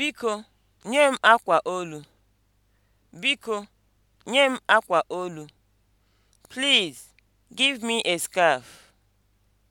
Biko nye m akwa olu. Biko nye m akwa olu. Please give me a scarf.